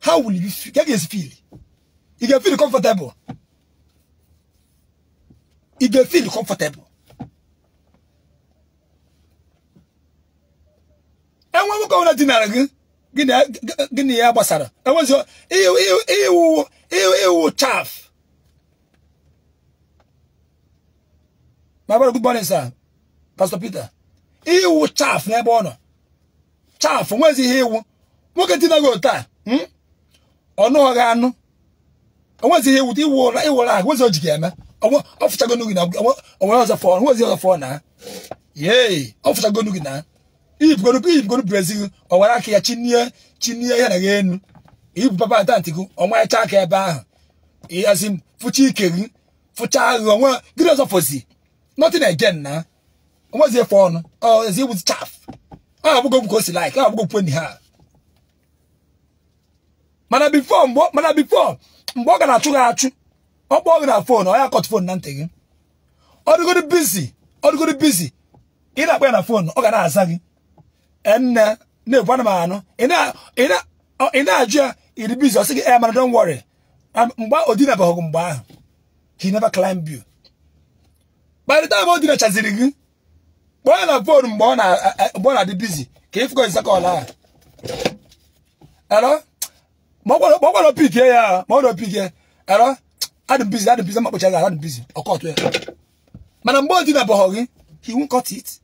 ha wuru fie ka e ga-esi fili ị ga-efili comfortable e dey feel comfortable enwe nwoke ọbụla dinara gị gịnị ya gbasara enwezi iwu iwu chaff. my brother good morning sir pastor peter iwu chaf n'ebe ọ nọ chaf nwezi ihe iwu nwoke dinaghị hmm? otu a ọnụ ọgha anụ enwezi ihe iwu iwu ụra iwu ụra ahụ nwezi o What's your game? ọfụtago gị na onwere ọzọ fọ nwezi ọzọ fọ na yee ọfụtago gị na iyipụgoro brazil ọwara aka ya chinie chinie ya na ya enu ibu papa atanti gị ọmarịcha aka ebe ahụ ịhazi m fụcha ike gị fụcha aghụ ọnwa gịnị ọzọ fọzi nothing again na onwezi efe ọnụ ezi ibu chaf ọ abụgo bụ ka o si like ọ abụgo kwenyi ha mana bifo mgbe ọ ga na-achụ gị achụ ọ kpọọ gị na fon ọ ya akọtụ fon na ntị gị ọ dịgoro bizi ọ dịgoro bizi ị na-akpọ ya na fon ọ ga na-aza gị enne na-ebu ana m anụ ị na-ajụ ya iri bizi ọ sị gị e eh, mana don wọrị mgbe odinabaghị mgbe ahụ he never climb you kparịta the time o gị kpọọ ya na fon eh, mgbe ọ na-adị bizi ka ịfụgo nzakọla ahụ ero ma ọ gwara opikie ya ma ọ na opikie ero Had busy, had busy, much as I had busy. Or caught where. Madam Boy did eh? not He won't cut it.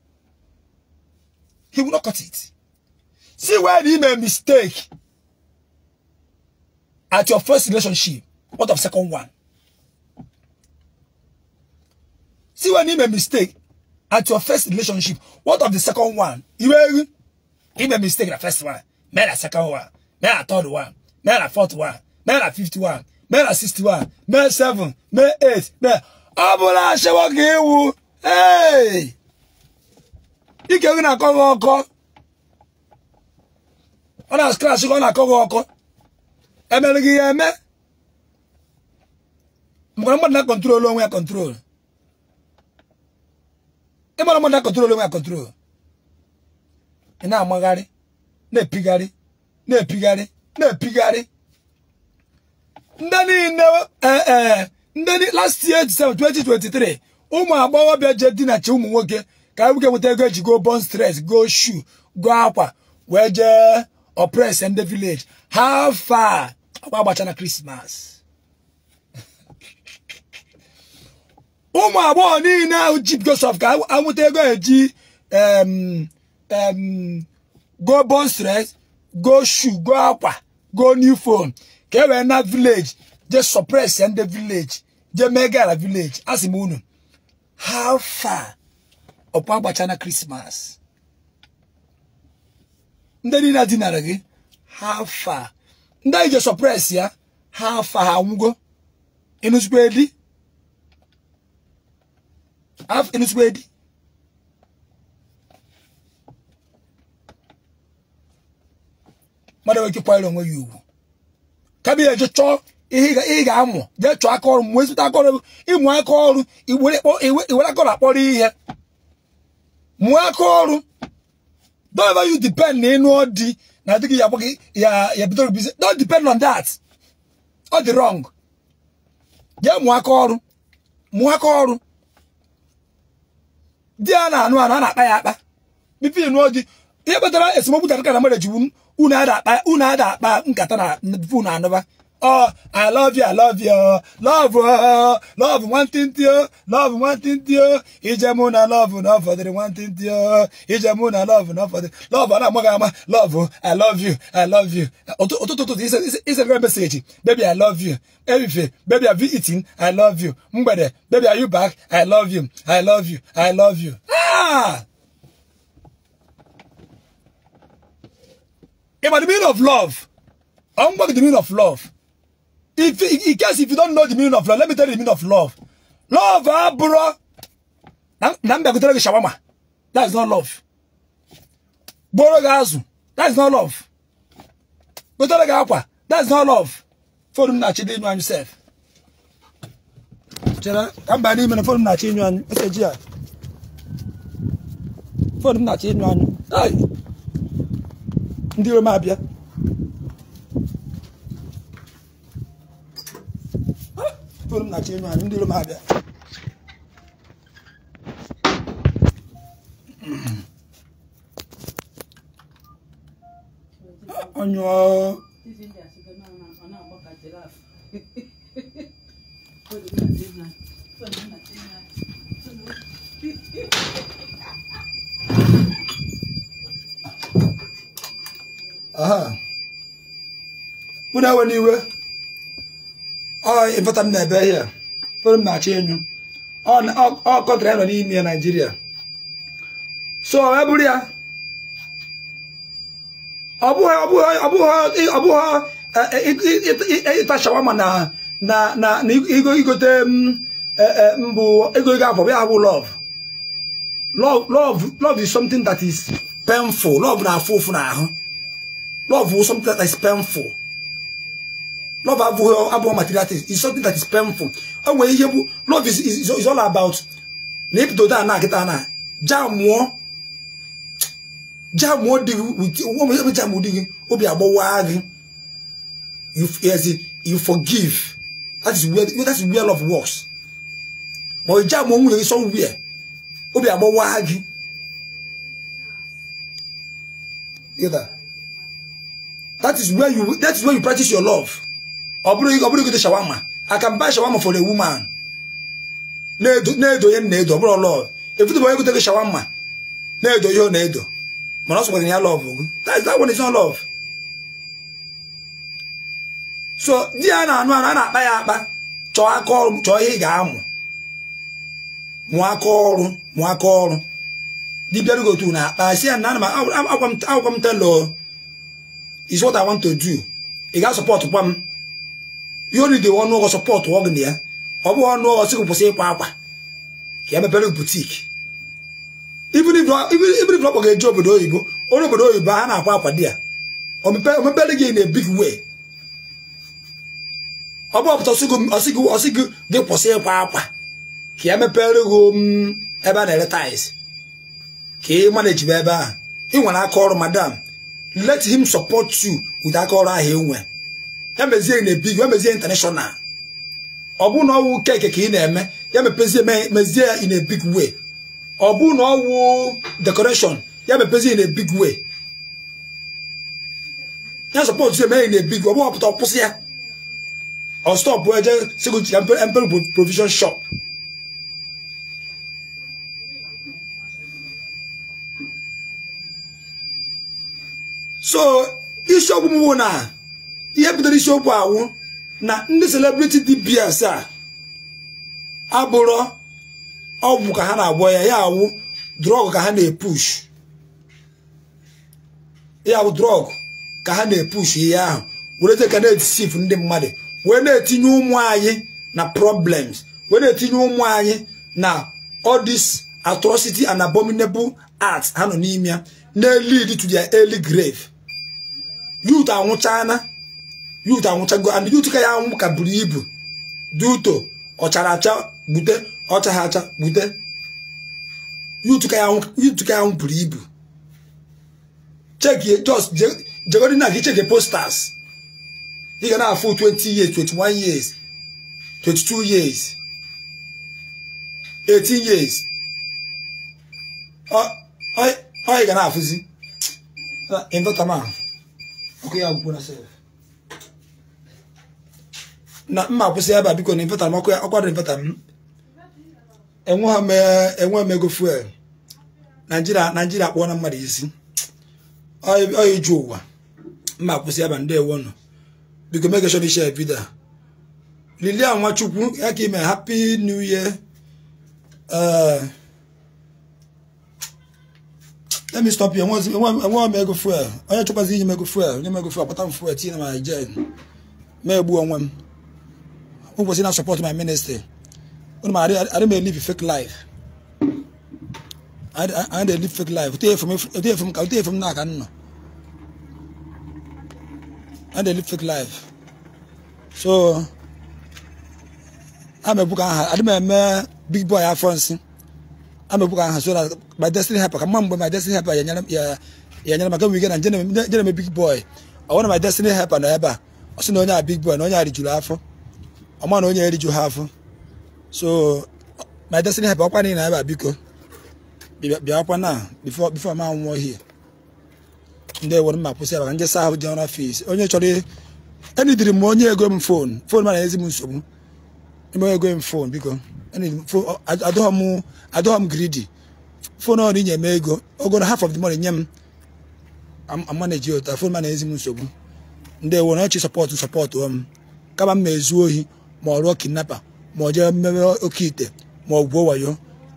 He will not cut it. See where he made mistake at your first relationship. What of second one? See where he made mistake at your first relationship. What of the second one? You will he made mistake the first one, made a second one, made a third one, made a fourth one, made a fifth one. mee na 61 mee 7 mee 8 mee ọ bụla achịwa ịwụ iwu ike gị na-akọ gị ọkọ ọ na skrash gị ọ na-akọ gị ọkọ emere gị ya eme mgbara mmadụ na kọntrol onwe ya kọntrol ịgbara mmadụ na kọntrol onwe ya kọntrol ị na-amagharị na-epigharị na-epigharị na-epigharị ndị niile eh, eh, ndị last year 2023 ụmụ agbọghọbịa je dinachi ụmụ nwoke ka nwoke nweta ego eji go bon stress go shoe go akwa wee jee oppress ndị village ha fa agba agbacha na krismas ụmụ agbọghọ niile ahụ jip gosef ka anwụta ego eji go bon stress go shoe go akwa go new phone ka e wee na vileji je suppress nde vileji je mee gara vileji a sị m unu how far ọkwa agbacha na christmas ndị niile dinara gị how far ndị anyị je suppress ya how far ha nwụgo ịnụzikwa edi ịnụzikwa edi mmadụ nwere ike kwanyere onwe ya ugwu kabia je chọọ ihe ị ga-amụ jee chọọ aka ọrụ mgbe ezute aka ọrụ ịmụ aka ọrụ iwere aka ọrụ akpọrọ ihe mụọ aka ọrụ don't ever you depend na ịnụọ di na adịghị ya agbaghị ya ya bidoro bizi don't depend on that ọ dị wrong jee mụọ aka ọrụ mụọ aka ọrụ di a na-anụ anụ a na-akpa ya akpa bipi ịnụọ di ihe kpatara esemokwu dara ka na mmadụ ejiwu unu adakpa unu adakpa nkata na fonu anụba ọ i love you i love you love oh, love nwantịntị o oh. love nwantịntị o oh. ije mụ na love na ọfọdụrụ nwantịntị o ije mụ na love na the love ọ na-amaghị love i love you i love you Oto oto this ụtụtụ ụtụtụ isere message, baby i love you everything baby i be eating i love you mgbede baby are you back i love you i love you i love you ah! about the meaning of love. I'm going to the meaning of love. If, in case if you don't know the meaning of love, let me tell you the meaning of love. Love, ah, bro. That is not love. Borogazu. That is not love. Gotolaga akwa. That is not love. Forum na chide inu anyu self. Chere, kamba ni mena forum na chide inu anyu. Ese jia. Forum na chide inu anyu. Hey. ndị Roma abịa na-achọ ịnụ anyị ndị Roma abịa onye ọ mụ na-ewe n'iwe ịfọta m na-ebe ihe fere m na-achọ enyu ọ kọntra nọ n'ime ya naijiria so e ya ọ bụghị ịta shawama na igote mbụ e, e, ego ego afọ ya bụ love love love is something that is painful love na-afụ ụfụ n'ahụ Love is something that is painful. Love abụghị abụghị material things. is something that is painful. O nwere ihe love is, is, is all about na ebidodo a na-akịta na jamụọ jamụọ dị gị ebe jamụ dị gị obi agbawa gị you forgive that is where, that is where love works But ọ jamụọ nwunye gị somewhere obi agbawa gị. Get that? that is where you that is where you practice your love ọ bụrụ ọ bụrụ gote shawama I can buy shawama for a woman na-edo ya m na-edo ọ bụrụ love efutu bụ onye gote gị shawama na-edo ya ọ na-edo mana ọ sọkwara ya love gị that is that one is not love so di ya na-anụ a na-akpa ya akpa chọọ aka ọrụ chọọ ihe ị ga-amụ mụọ aka ọrụ mụọ aka ọrụ na akpa si ya na ana m agwa m telọ is what I want to do ị ga support kwa m you only dey ọnụ support ọgụ ya ọ bụghị ọnụ ụgwọ sịgụ kwụsị ịkwa ka ya e butik even if ọ kpọga eje obodo oyibo onye obodo oyibo a na-akwa akwa di ya omepere gị na big way ọ bụ ọpụta ọsị gị gị kwụsị ịkwa akwa ka ya e mepere m um, ebe a na-ere tiles ka ị manajibe ebe ahụ ị nwere aka ọrụ madam let him support you with aka ọrụ ahụ enwe ya mezie na big ya mezie international ọ bụ na ọwụ keke ka ị na-eme ya mepezie mezie ya in a big way ọ bụ na ọwụ decoration ya mepezie in a big way ya support ya mee in a big way ọ bụ ọpụta ọkwụsị ya ọ stọpụ eje sigo ya mpere provision shop so isiokwu m na ihe bidoro isiokwu awụ na ndị celebrity DBS a abụrọ ọgwụ ka ha na-agwọ ya ya awụ drọg ka ha na-epush ya bụ drọg ka ha na-epush ihe ahụ were ka na-etisif ndị mmadụ wee na-etinye ụmụ anyị na problems wee na-etinye ụmụ anyị na odis atrocity and abominable arts ha nọ n'ime ya na-lead to their early grave yut anwụchana yut anwụchago and yut ka ya anwụ ka buru ibu duto ọchara acha gbute ọchagha acha gbute yut ka ya anwụ buru ibu chekie just jegodi na gị chekie posters ị ga na-afụ 20 years 21 years 22 years 18 years ọ ị ga na-afụzi ịdọta ahụ nke ya gwụkwara sef na mma akwụsị ebe a biko na infeta m ọkwado infeta m hmm? enwe m ego fuel naijiria naijiria kpụọ na mmadụ isi ọ iju ụwa mma akwụsị Aba ndị ewo nọ biko megeshọn ishe vidio a lilia nwachukwu ya ka ime happy new year uh, let me stop you enwe m ego onye chọkwazi iji m ego fuel nye m ego fuel kpata m na Naịjirịa ma egbu onwe m ụbọchị na support my ministry unu ma adị m elive fake life i dị live fake life ote efe m na aka nna anyị fake life so a m ebuka aha adị m eme big boy afọ nsị amepụka aha so na my destiny helper ka mma mgbe my destiny helper ya nyere maka wige na njere m big boy ọ bụrụ na my destiny helper nọ ebe a ọ sị na onye a big boy na onye a rijuru afọ ọma na onye eriju ha afọ so my destiny helper ọkwa niile ebe a biko bịakwa na before before ma nwụọ hie ndị ewere mma kwụsị ya maka nje saa ahụ ji ọrụ onye chọrọ enidiri m onye ego m fon fon mana ezi m nsogbu ime ego m fon biko adọghọ m gridi fon ọrụ inye m ego ogoro half of the money nye m amanaji ụta fon na ezi m nsogbu ndị ewo na ọchị sọpọtụ sọpọtụ m um, kama m ezu ohi ma ọ rụọ kidnapa ma ọ jee mmemme oke ite ma ọ gwuo wayo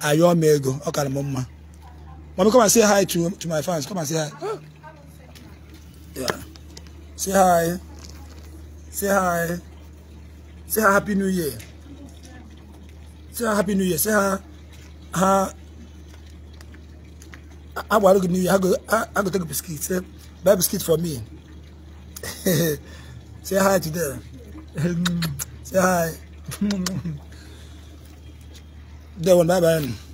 ayọọ m ego ọ kara m mma Mama come and say hi to, to my fans. Come and say hi. Yeah. Say hi. Say hi. Say hi. Happy New Year. say happy new year say ha ha agbaru good new year i go i go take biscuit say buy biscuit for me say hi to them say hi then one bye bye.